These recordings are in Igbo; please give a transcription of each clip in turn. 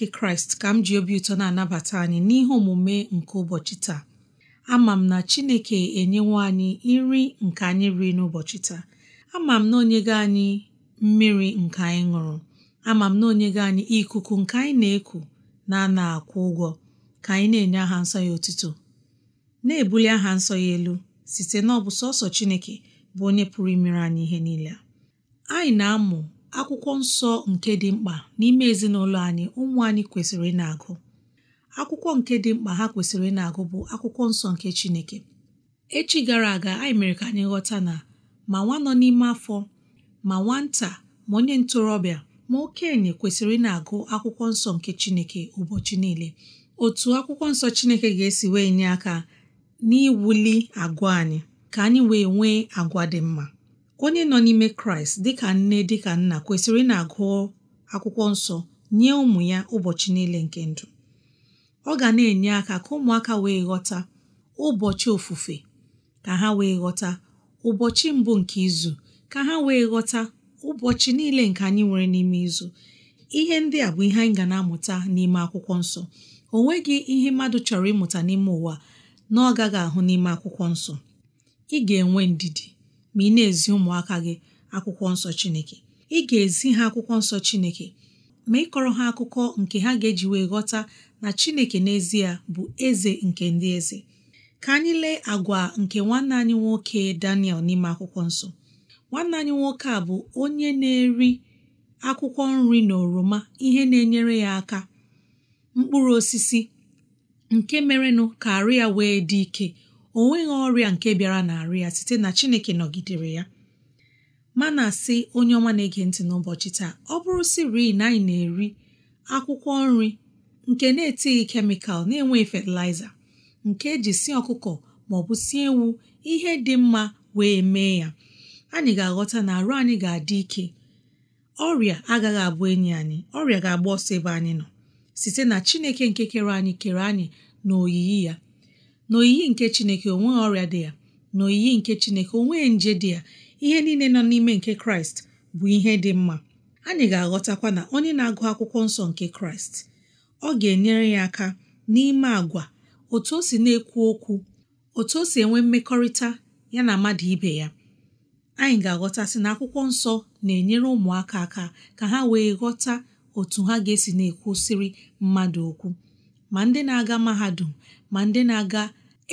nke kraịst ka m ji obi ụtọ na-anabata anyị n'ihe omume nke ụbọchị taa ama m na chineke enyewo anyị nri nke anyị ri n'ụbọchị taa ama m na onyego anyị mmiri nke anyị ṅụrụ ama m na onye go anyị ikuku nke anyị na-eku na ana akwụ ụgwọ ka anyị na-enye aha nsọ ya otuto na-ebuli aha nsọ ya elu site bụ sọsọ chineke bụ onye pụrụ imere anyị ihe niile anyị na-amụ akwụkwọ nsọ nke dị mkpa n'ime ezinụlọ anyị ụmụ anyị kwesịrị ị na-agụ akwụkwọ nke dị mkpa ha kwesịrị ị na-agụ bụ akwụkwọ nsọ nke Chineke echi gara aga anyị mere ka anyị ghọta na ma nwa nọ n'ime afọ ma nwata ma onye ntorobịa ma okenye kwesịrị ị na-agụ akwụkwọ nsọ nke Chineke ụbọchị niile otu akwụkwọ nsọ Chineke ga-esi wee nye aka n'iwuli agwa anyị ka anyị wee nwee agwa dị mma onye nọ n'ime kraịst dịka nne dịka nna kwesịrị na-agụ akwụkwọ nsọ nye ụmụ ya ụbọchị niile nke ndụ ọ ga na-enye aka ka ụmụaka wee ghọta ụbọchị ofufe ka ha wee ghọta ụbọchị mbụ nke izu ka ha wee ghọta ụbọchị niile nke anyị nwere n'ime izu ihe ndị a bụ ihe anyị ga na-amụta n'ime akwụkwọ nsọ o nweghị ihe mmadụ chọrọ ịmụta n'ime ụwa na ọ gaghị ahụ n'ime akwụkwọ nsọ ị ga-enwe ndidi ma ị na-ezi ụmụaka gị akwụkwọ nsọ Chineke ị ga-ezi ha akwụkwọ nsọ Chineke ma ịkọrọ ha akụkọ nke ha ga-eji wee ghọta na Chineke n'ezie bụ eze nke ndị eze ka anyị lee agwa nke nwanne anyị nwoke Daniel n'ime akwụkwọ nsọ nwanne anyị nwoke a bụ onye na-eri akwụkwọ nri na oroma ihe na-enyere ya aka mkpụrụ osisi nke merenụ ka arụ ya wee dị ike o nweghị ọrịa nke bịara na-arụ ya site na Chineke nọgidere ya mana asị onye ọma na-ege ntị n'ụbọchị taa ọ bụrụ siri na anyị na-eri akwụkwọ nri nke na-etighị kemikal na-enweghị fatịlaịza nke eji sie ọkụkọ ma ọ bụ sie ewu ihe dị mma wee mee ya anyị ga-aghọta na arụ anyị ga-adị ike ọrịa agaghị abụ enyi anyị ọrịa ga-agba ọsọ ebe anyị nọ site na Chineke nke kere anyị kere anyị na oyiyi ya na nke chineke onweghị ọrịa dị ya na oyiyi nke chineke onwe nje dị ya ihe niile nọ n'ime nke kraịst bụ ihe dị mma anyị ga-aghọtakwa na onye na-agụ akwụkwọ nsọ nke kraịst ọ ga-enyere ya aka n'ime agwa otu o si na-ekwu okwu otu o si enwe mmekọrịta ya na mmadụ ibe ya anyị ga-aghọtasị na akwụkwọ nsọ na-enyere ụmụaka aka ka ha wee ghọta otu ha ga-esi na-ekwusiri mmadụ okwu ma ndị na-aga mahadum ma ndị na-aga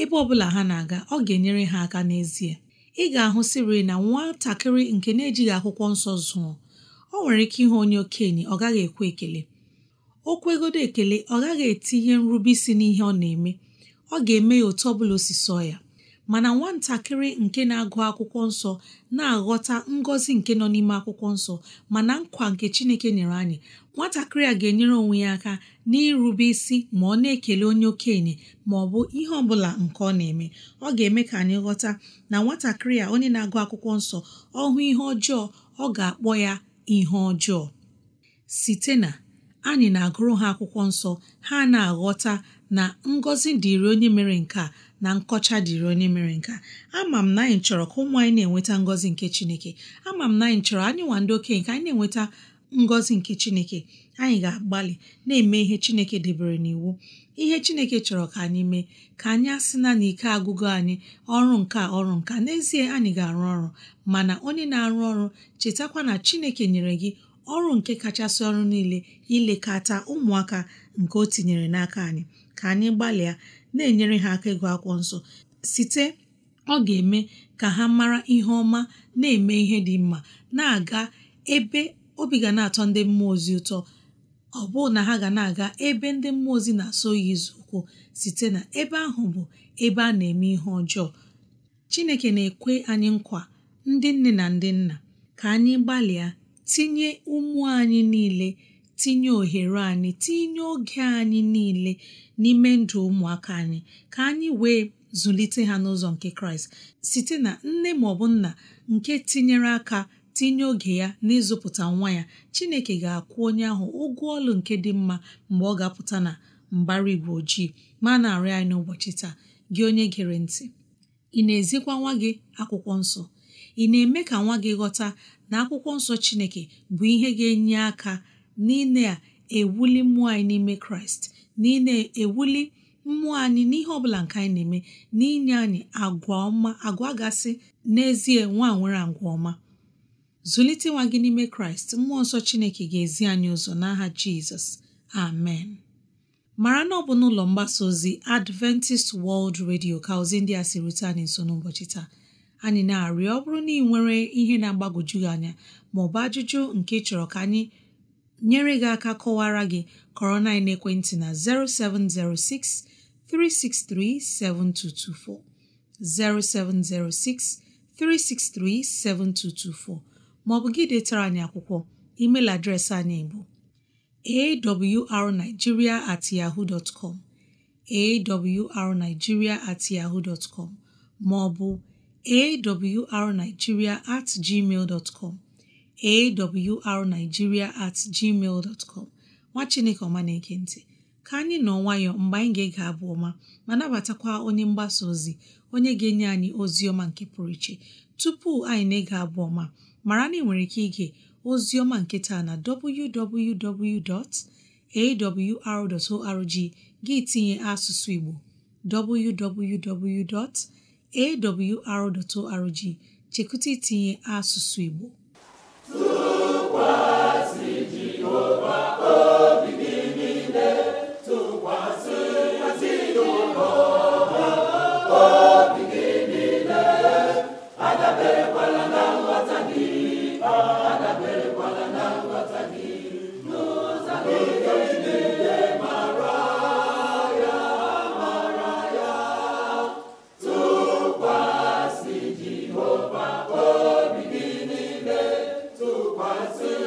ebe ọ bụla ha na-aga ọ ga-enyere ha aka n'ezie ị ga-ahụ siri na nwatakịrị nke na-ejighị akwụkwọ nsọ zụọ ọ nwere ike ịhụ onye okenye ọ gaghị ekwe ekele okwu kwegodo ekele ọ gaghị etinye nrube isi n'ihe ọ na-eme ọ ga-eme ya otu ọ bụla ya mana nwatakịrị nke na-agụ akwụkwọ nsọ na-aghọta ngọzi nke nọ n'ime akwụkwọ nsọ mana nkwa nke Chineke nyere anyị nwatakịrị a ga-enyere onwe ya aka n'irube isi ma ọ na-ekele onye okenye ma ọ bụ ihe ọ bụla nke ọ na-eme ọ ga-eme ka anyị ghọta na nwatakịrị a onye na-agụ akwụkwọ nsọ ọ ihe ọjọọ ọ ga-akpọ ya ihe ọjọọ site na anyị na-agụrụ ha akwụkwọ nsọ ha na-aghọta na ngọzi dịrị onye mere nke a na nkọcha dịrị onye mere nke a ama m na anyị chọrọ ka ụmụ anyị na-enweta ngọzi nke chineke ama m na anyị chọrọ anyị nwa ndị okenye ka anyị na-enweta ngọzi nke chineke anyị ga-agbalị na-eme ihe chineke debere n'iwu ihe chineke chọrọ ka anyị mee ka anyị asị na n'ike agụgụ anyị ọrụ nka ọrụ nka n'ezie anyị ga-arụ ọrụ mana onye na-arụ ọrụ chetakwa na chineke nyere gị ọrụ nke kachasị ọrụ niile ilekọta ụmụaka nke o tinyere n'aka anyị ka anyị gbalịa na-enyere ha aka ego akwụkwọ nsọ site ọ ga-eme ka ha mara ihe ọma na-eme ihe dị mma na-aga ebe obi ga na-atọ ndị mmụọ ozi ụtọ ọ bụụ na ha ga na-aga ebe ndị mmụọ ozi na-asọ ya ụkwụ site na ebe ahụ bụ ebe a na-eme ihe ọjọọ Chineke na-ekwe anyị nkwa ndị nne na ndị nna ka anyị gbalịa tinye ụmụ anyị niile tinye ohere anyị tinye oge anyị niile n'ime ndụ ụmụaka anyị ka anyị wee zụlite ha n'ụzọ nke kraịst site na nne ma ọ bụ nna nke tinyere aka tinye oge ya n'ịzụpụta nwa ya chineke ga-akwụ onye ahụ ụgwọ ọlụ nke dị mma mgbe ọ ga-apụta na mbara igwe ojii ma na-arị anyị n'ụbọchị taa gị onye gere ntị ị na-ezikwa nwa gị akwụkwọ nsọ ị na-eme ka nwa gị ghọta na akwụkwọ nsọ Chineke bụ ihe ga-enye aka n'ile a ewuli mmụọ anyị n'ime Kraịst n'ile ewuli mmụọ anyị n'ihe ọbụla nke anyị na-eme n'inye anyị agwa ọma agwa gasị n'ezie nwa nwere agwa ọma zụlite nwa gị n'ime kraịst mmụọ nsọ chineke ga-ezi anyị ụzọ n'aha jizọs amen mara na ọ bụ n'ụlọ mgbasa ozi adventist world radio ka ozi ndị a si rute anyị nso n'ụbọchị taa anyị na-arịọ ọ bụrụ na ị nwere ihe na-agbagwoju gị anya ma ọ bụ ajụjụ nke ị chọrọ ka anyị nyere gị aka kọwara gị kọrọ na ekwentị na 0706 363 7224 0706 363 7224 ma ọ bụ gị detara anyị akwụkwọ email adreesị anyị bụ awrnigeria at yahoo dot com at yahoo dot com ma ọ bụ arigiria at gmail dot com at gmail dot com nwa chineke ọma na-ege ka anyị nọ nwayọọ mgbe anyị ga-ege abụ ọma ma nabatakwa onye mgbasa ozi onye ga-enye anyị ozi ọma nke pụrụ iche tupu anyị na-ege abụ ọma mara na ị nwere ike ige ozi ọma nke taa na arorg gị tinye asụsụ Igbo www. awr.org chekwụta itinye asụsụ Igbo a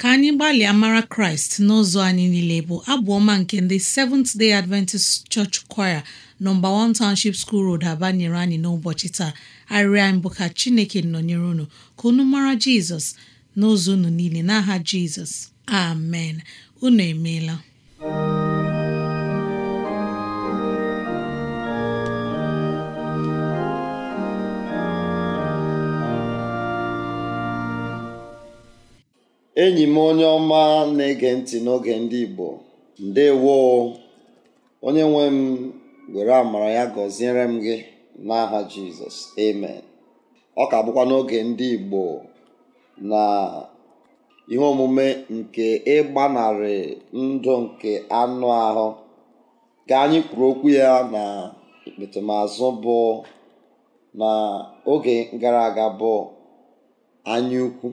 ka anyị gbalịa mara kraịst n'ụzọ anyị niile bụ abụ ọma nke ndị Seventh Day Adventist Church Choir nọmba 1 Township School Road Aba nyere anyị n'ụbọchị taa arịrịọ anyị ka Chineke nọnyere unu ka unu mara Jizọs n'ụzọ unu niile n'aha Jizọs amen unu emeela enyi m onye ọma na-ege ntị n'oge ndị Igbo ndewo onye nwe m were amara ya gọziere m gị n'aha Jizọs amen ọ ka bụkwa n'oge ndị Igbo na ihe omume nke ịgbanarị ndụ nke anụ ahụ ga anyị kwuru okwu ya na ikpetemazụ bụ na oge gara aga bụ anyaukwu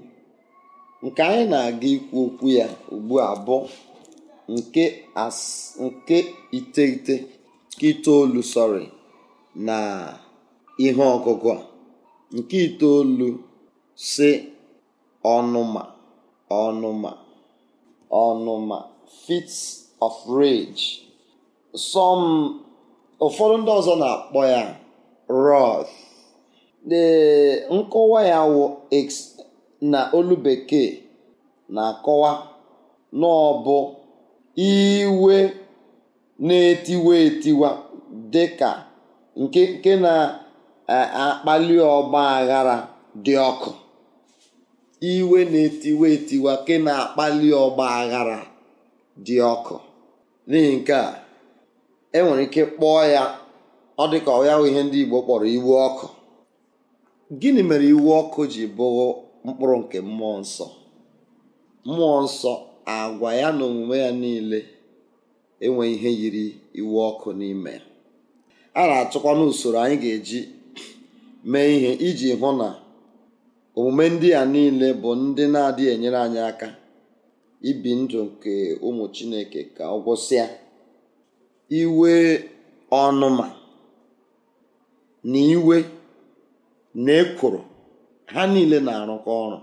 nke anyị na-aga ikwu okwu ya ugbu a bụ nke iteghete nke itoolu sọrị na ihe ọgụgụ a nke itoolu si ọnụma ọnụma ọnụma fit of rage some ụfọdụ ndị ọzọ na-akpọ ya wrath the nkọwa ya wụ na olu Bekee na-akọwa na ọ bụ iwe na-etiwa etiwa dị ka nke na-akpali ọgba aghara dị ọkụ iwe na-etiwa etiwa nke na-akpali ọgba aghara dị ọkụ n'ihi nke a enwere ike kpọọ ya ọ dị ka ọ ya ihe ndị Igbo kpọrọ iwu ọkụ gịnị mere iwu ọkụ ji bụrụ mkpụrụ nke mmụọ nsọ mmụọ nsọ agwa ya na omume ya niile enwe ihe yiri iwu ọkụ n'ime ya a na-achọkwa n'usoro anyị ga-eji mee ihe iji hụ na omume ndị a niile bụ ndị na-adịghị enyere anyị aka ibi ndụ nke ụmụ chineke ka ọ gwụsịa iwe ọnụma na iwe na ekworo ha niile na-arụkọ ọrụ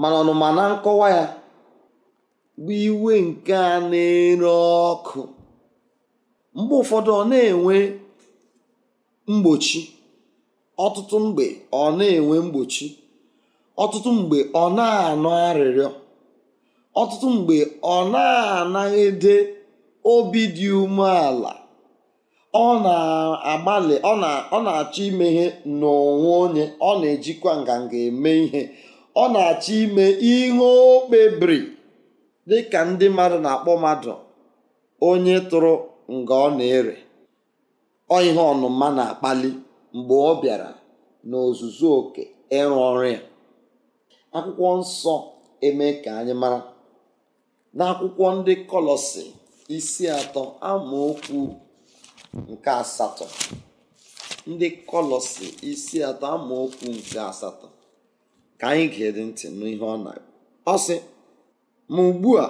mana ọnụma na nkọwa ya bụ iwe nke a na-ere ọkụ mgbe ụfọdụ ọ na-enwe mgbochi ọtụtụ mgbe ọ na-enwe mgbochi ọtụtụ mgbe ọ na-anọ arịrịọ ọtụtụ mgbe ọ na-anaghịde obi dị umeala ọ na-agbalị ọ na-achọ ime ihe n'onwe onye ọ na-ejikwa nganga eme ihe ọ na-achọ ime ihe o kpebiri dịka ndị mmadụ na-akpọ mmadụ onye tụrụ nga ọ na-ere ọ ihe ọnụma na-akpali mgbe ọ bịara n'ozuzu oke ịrụ ọrụ ya akwụkwọ nsọ eme ka anyị mara n'akwụkwọ ndị kọlọsị isi atọ amaokwu nke asatọ ndị kọlọsị isi atọ amaokwu nke asatọ ka anyị ga-ede ntị n'ihe ọ na ọ sị ma ugbu a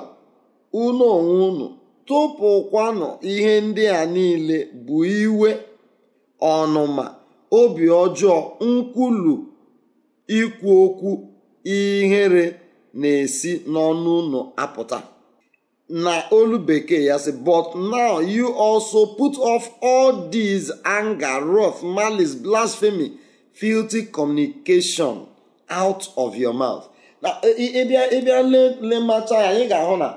unu onwe unu tụpụkwanụ ihe ndị a niile bụ iwe ọnụma obi ọjọọ nkwulu ikwu okwu ihere na-esi n'ọnụ unu apụta na olu bekee ya si but now you also put off all dis anger wrath malice blasphemy filthy communication out of your mouth na e, e, e ịbịa lemacha ya anyị ga-ahụ na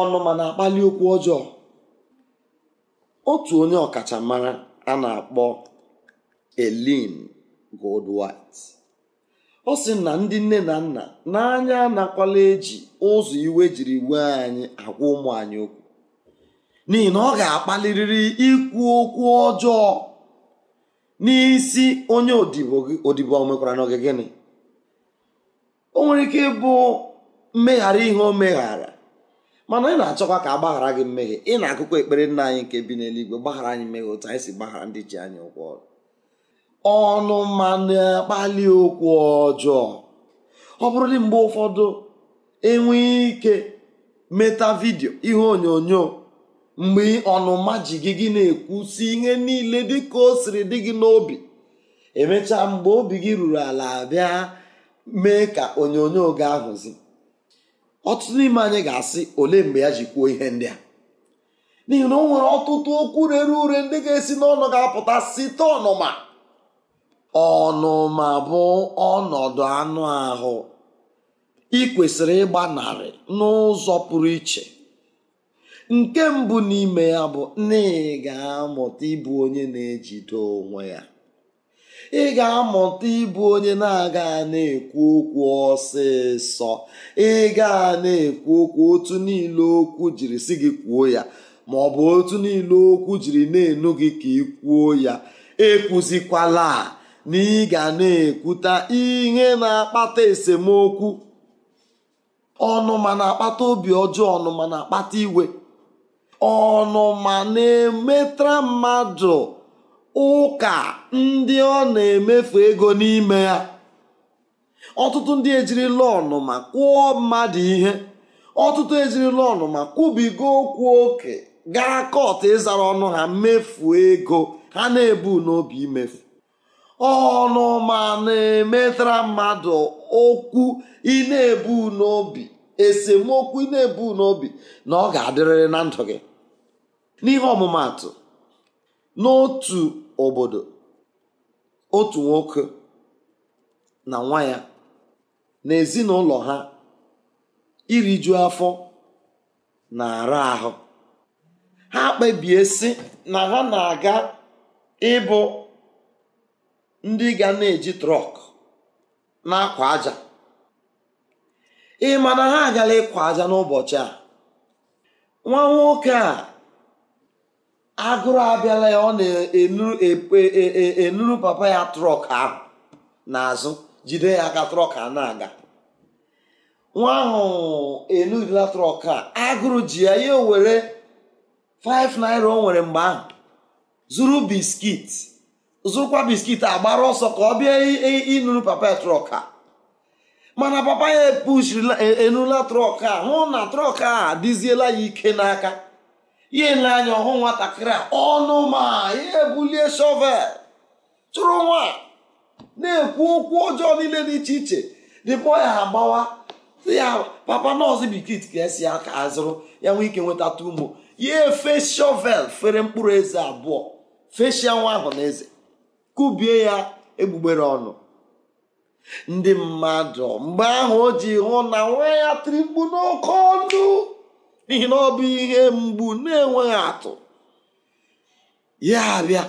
ọnụma na-akpali okwu ọjọọ otu onye ọkachamara a na-akpọ gold Goldwhite ọ sị na ndị nne na nna n'anya anakwala eji ụzọ iwe jiri wee anyị agwa ụmụ anyị okwu n'ihi na ọ ga-akpalirịrị ikwu okwu ọjọọ n'isi onye odibo odibo mekwara na gịnị o nwere ike ịbụ mmeghara ihe o meghara mana ị na-achọkwa ka a gbaghara gị mmehie ị na-akụkọ ekpere nna anyị nke bi n'eluigwe gbaghara anyị mmehie otu anyị si gbaghara ndị ji anyị ụgwọ ọrụ ọnụ ma na-akpali okwu ọjọọ ọ dị mgbe ụfọdụ enwe ike meta vidio ihe onyonyo mgbe ọnụma ji gị gị na-ekwusi ihe niile dị ka o siri dị gị n'obi emechaa mgbe obi gị ruru ala bịa mee ka onyonyo ga ahụzi ọtụtụ n'ime anyị ga-asị ole mgbe ya ji kwuo ihe ndị a n'ihi na o nwere ọtụtụ okwu rere ure ndị ga-esi n'ọnụ ga-apụta site ọnụma ọnụma bụ ọnọdụ anụ ahụ ị kwesịrị ịgbanarị n'ụzọ pụrụ iche nke mbụ n'ime ya bụ na ị ga-amụta ịbụ onye na-ejide onwe ya ị ga-amụta ịbụ onye na-aga na-ekwu okwu ọsịsọ ị na-ekwu okwu otu niile okwu jiri si gị kwuo ya ma ọ bụ otu niile okwu jiri na-enu gị ka ị kwuo ya ekwuzikwala a na ị ga na-ekwuta ihe na-akpata esemokwu ọnụma na-akpata obi ọjọọ ọnụma na-akpata iwe ọnụma na-emetara mmadụ ụka ndị ọ na-emefu ego n'ime ya ọtụtụ ndị ejirila ọnụma kwụọ mmadụ ihe ọtụtụ ejirila ọnụma kwubiga okwu oke gaa kọt ịzara ọnụ ha mmefu ego ha na-ebu n'obi imefu ọnụma na-emetara mmadụ okwu ị na-ebu n'obi esemokwu ị na-ebu n'obi na ọ ga-adịrịrị na ndụ gị n'ihe ọmụmatụ n'otu obodo otu nwoke na nwa ya na ezinụlọ ha iriju afọ na-ara ahụ ha kpebie sị na ha na-aga ịbụ ndị ga na-eji trọk na-akwa aja ị ma na ha agala ịkwa aja n'ụbọchị a nwa nwoke a agụrụ abịala ya ọ na-enuru e, e, e, papa ya trọk ahụ n'azụ jide ya aka trọk a na-aga nwa ahụ enurila trọk a agụrụ ji ya ya were 5 naira o nwere mgbe ahụ zuru biskit zụrụkwa biskit agbara ọsọ ka ọ bịa ịnụrụ papa trọk a mana papa ya epushiri e, enula trọk a hụ na trọk a adịziela ya ike n'aka ya ele anya ọhụ nwatakịrị a ọnụ ma ya ebulie shọvel chụrụ nwa na-ekwu okwu ọjọọ niile dị iche iche dịpọ ya agbawa ya papa nọọsụ biskit ka esi aka azụrụ ya nwee ike nweta tumo ya efe shọvel fere mkpụrụ eze abụọ feshia nwa ahụ na eze kụbie ya egbugbere ọnụ ndị mmadụ mgbe ahụ o ji hụ na nwa ya tiri mgbu n'oke ọnụ n'ihi na ọ bụ ihe mgbu na-enweghị atụ ya abịa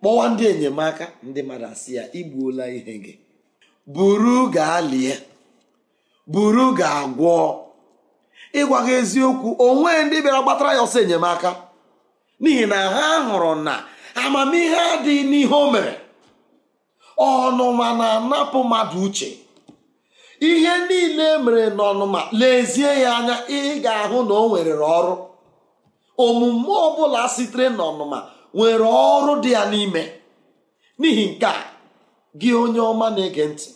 kpọwa ndị enyemaka ndị mmadụ asị ya igbuola ihe gị buru gaa lie buru gaa gwọọ ịgwa gị eziokwu onwe ndị bịara gbatara ya ọsọ enyemaka n'ihi na ha hụrụ na amamihe adịghị n'ihe o mere ọnụma na-anapụ mmadụ uche ihe niile e mere n'ọnụma lezie ya anya ị ga-ahụ na o nwere ọrụ omume ọbụla sitere n'ọnụma nwere ọrụ dị ya n'ime n'ihi nke a gị onye ọma na-ege ntị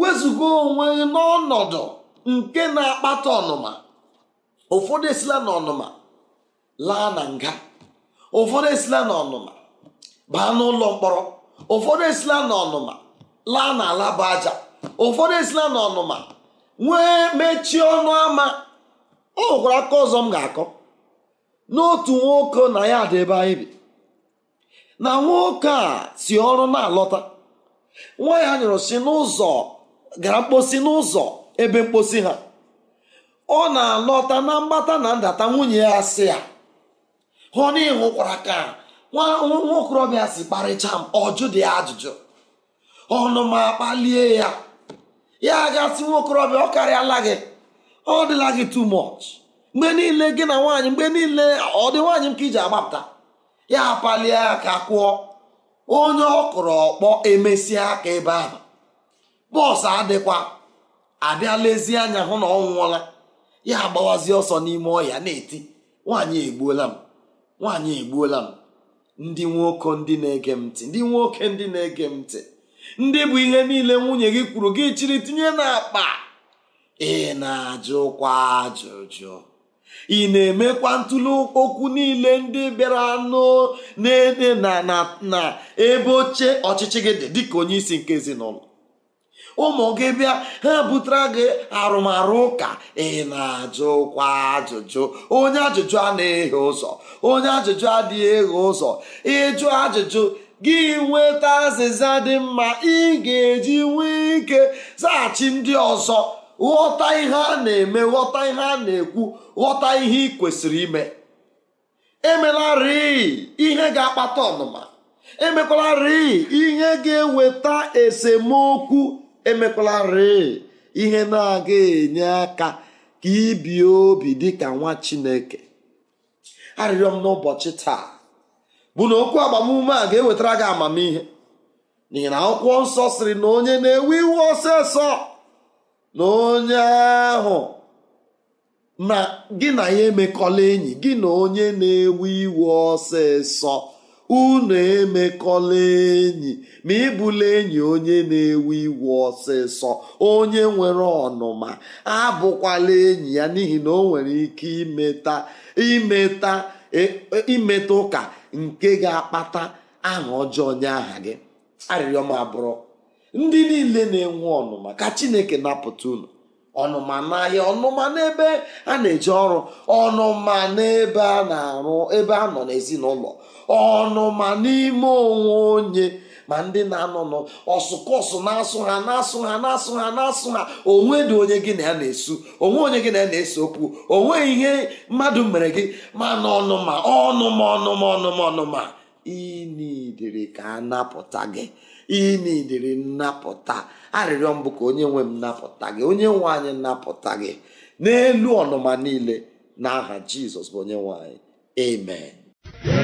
wezụga onwe n'ọnọdụ nke na-akpata ọnụma ụfọdụ esila n'ọnụma laa na nga ụfọdụ esila n'ọnụma baa n'ụlọ mkpọrọ ụfọdụ esila n'ọnụma laa n'ala bụ aja ụfọdụ esila n'ọnụma nwee mechie ọnụ ama ọ hụkwara aka ọzọ m ga-akọ n'otu nwoke na ya dị ebe anyị bi na nwoke a si ọrụ na-alọta nwa ya nyụrụ si n'ụzọ gara mkposi n'ụzọ ebe mkposi ha ọ na-alọta na mgbata na ndata nwunye ya si ya hụ na ịhụkwara aka nwa okorobịa si kparịcha m ọjụ dị ajụjụ ọnụma kpalie ya ya gasị nwa ọ karịala gị ọ dịla gị too much mgbe niile gị na nwaanyị mgbe niile ọ dị nwaanyị m ka iji agbapụta ya palie ya ka kwụọ onye ọ kụrụ ọkpọ emesịa aka ebe ahụ bọs adịkwa abịa ezi anya hụ na ọ nwụọla ya agbawazi ọsọ n'ime ọhịa na-eti nwaanyị egbuola m nwaanyị egbuola m ndị nwoke ndị na-ege m ndị nwoke ndị na-ege m ndị bụ ihe niile nwunye gị kwuru gị chiri tinye na n'akpa ị na-ajụkwa ajụjụ ị na-emekwa ntụli okwu niile ndị bịara n'ede na na ebe oche ọchịchị gị dị dịka onye isi nke ezinụlọ ụmụ gị bịa ha butere gị arụmarụ ụka ị na-ajụkwa ajụjụ onye ajụjụ a na-eghe ụzọ onye ajụjụ adịghị eghe ụzọ ịjụ ajụjụ gị nweta azịza dị mma ị ga-eji nwee ike zaghachi ndị ọzọ ghọta ihe a na-eme ghọta ihe a na-ekwu ghọta ihe ị kwesịrị ime emelarị ihe ga-akpata ọnụma emekwalarị ihe ga-eweta esemokwu emekwalarị ihe na-aga enye aka ka ibi obi dị ka nwa chineke arịrịọ m n'ụbọchị taa bụ na okwu agbamume a ga-ewetara gị amamihe n'ihi na akwụkwọ nsọ sịrị na onye na-ewe iwe ọsịsọ na onye ahụ na gị na ya emekọla enyi gị na onye na-ewe iwe ọsịsọ unu emekọla enyi ma ịbụla enyi onye na-ewe iwu ọsịsọ onye nwere ọnụma abụkwala enyi ya n'ihi na o nwere ike imeta imeta e, e, imeta ụka nke ga-akpata aha ọjọọ nye aha gị arịrịọ m abụrụ ndị niile na-enwe ọnụma ka chineke napụta unu ọnụma n'ahịa ọnụma n'ebe a na-eje ọrụ ọnụma n'ebe a na-arụ ebe a nọ n'ezinụlọ ọnụma n'ime onwe onye ma ndị na-anọ n'ọsụkọsụ na-asụ ha na-asụ ha na-asụ ha na-asụ ha onwe dị onye gị na ya na-esu onwe onye gị na ya na-ese okwu onwe ihe mmadụ mere gị mana ọnụma ọnụma ọnụma ọnụma ọnụma inidiri ka a napụta gị inidiri nnapụta arịrịọ mbụ ka onye nwe m napụta gị onye nwe napụta gị n'elu ọnụma niile n'aha jizọs bụ onye nwe anyị amen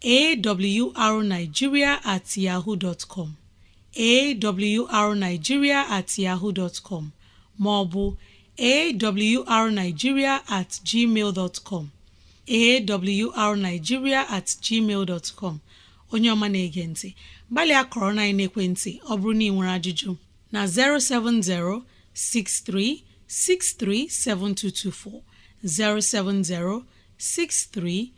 awrnigeria at yahoo dot com awrnigeria at yahoo dot com maọbụ awrnigeria at gmail dot com awrnigeria at gmail dot com onye ọma na-ege ntị gbalịa kọrọ na ekwentị ọ bụrụ na ị nwere ajụjụ na 070 6363 7224 070 63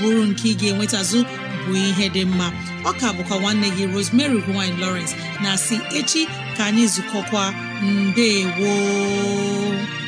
bụrụ nke ị ga-enwetazụ bụ ihe dị mma ọka bụkwa nwanne gị Rosemary gine Lawrence na si echi ka anyị zukọkwa mbe gboo